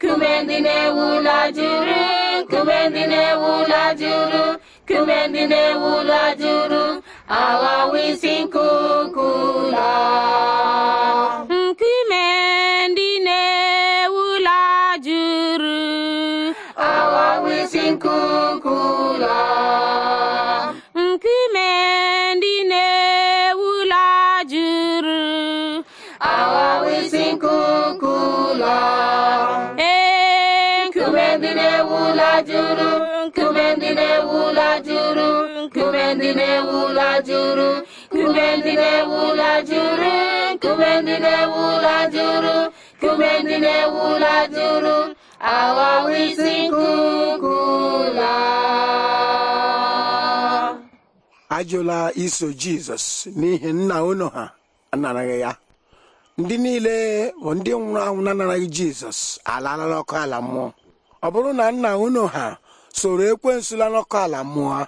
kume ndị juru kume ndị juru kume ndị na-ewu ụlọ juru awa wisin kukula. ụlọ nkume juru aghawa isi nkuku juru nkume ndị na-ewu ụlọ juru nkume ndị ụlọ juru ajụla iso jizọs n'ihi nna ụnụ ha anaraghị ya ndị niile bụ ndị nwụrụ anwụ na-anaraghị jizọs alalala ọkụ ala mmụọ ọ bụrụ na nna unu ha soro ekwensu lanọkọ ala mmụọ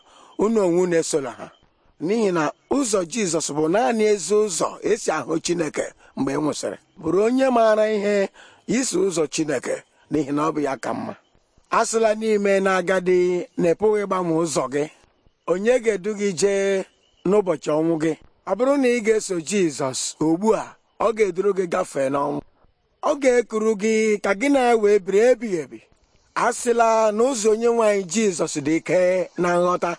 unu onwe unu esola ha n'ihi na ụzọ jizọs bụ naanị ezi ụzọ esi ahụ chineke mgbe ị e nwụsịrị bụrụ onye maara ihe iso ụzọ chineke n'ihi na ọ bụ ya ka mma asịla n'ime na agadi na ịpụghị ịgbanwe ụzọ gị onye ga-edu gị jee n'ụbọchị ọnwụ gị ọ bụrụ na ị ga-eso jizọs ugbu a ọ ga-eduru gị gafee n'ọnwụ ọ ga-ekuru gị ka gị na ya wee biri ebighị ebi a sịla na ụzọ onye nwanyị jizọs dị ike na nghọta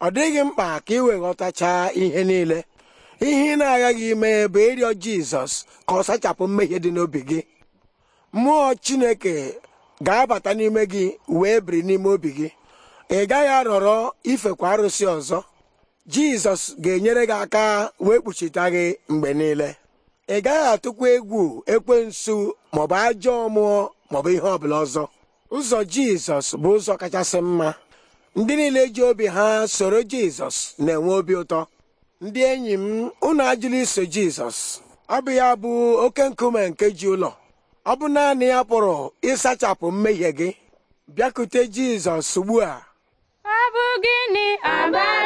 ọ dịghị mkpa ka ị wee ghọtachaa ihe niile ihe ị na-aghaghị ime bụ ịrịọ jizọs ka ọ sachapụ mmehie dị n'obi gị mmụọ chineke ga-abata n'ime gị wee biri n'ime obi gị ị gaghị arọrọ ifekwa arụsị ọzọ jizọs ga-enyere gị aka wee kpuchite gị mgbe niile ị gaghị atụkwa egwu ekwensu maọbụ ajọ mmụọ maọbụ ihe ọbụla ọzọ ụzọ jizọs bụ ụzọ kachasị mma ndị niile ji obi ha soro jizọs na-enwe obi ụtọ ndị enyi m unu ajụla iso jizọs ọ bụ ya bụ oke nkume nke ji ụlọ ọ bụ naanị ya pụrụ ịsachapụ mmehie gị bịakute jizọs ugbu a ọ bụ gịnị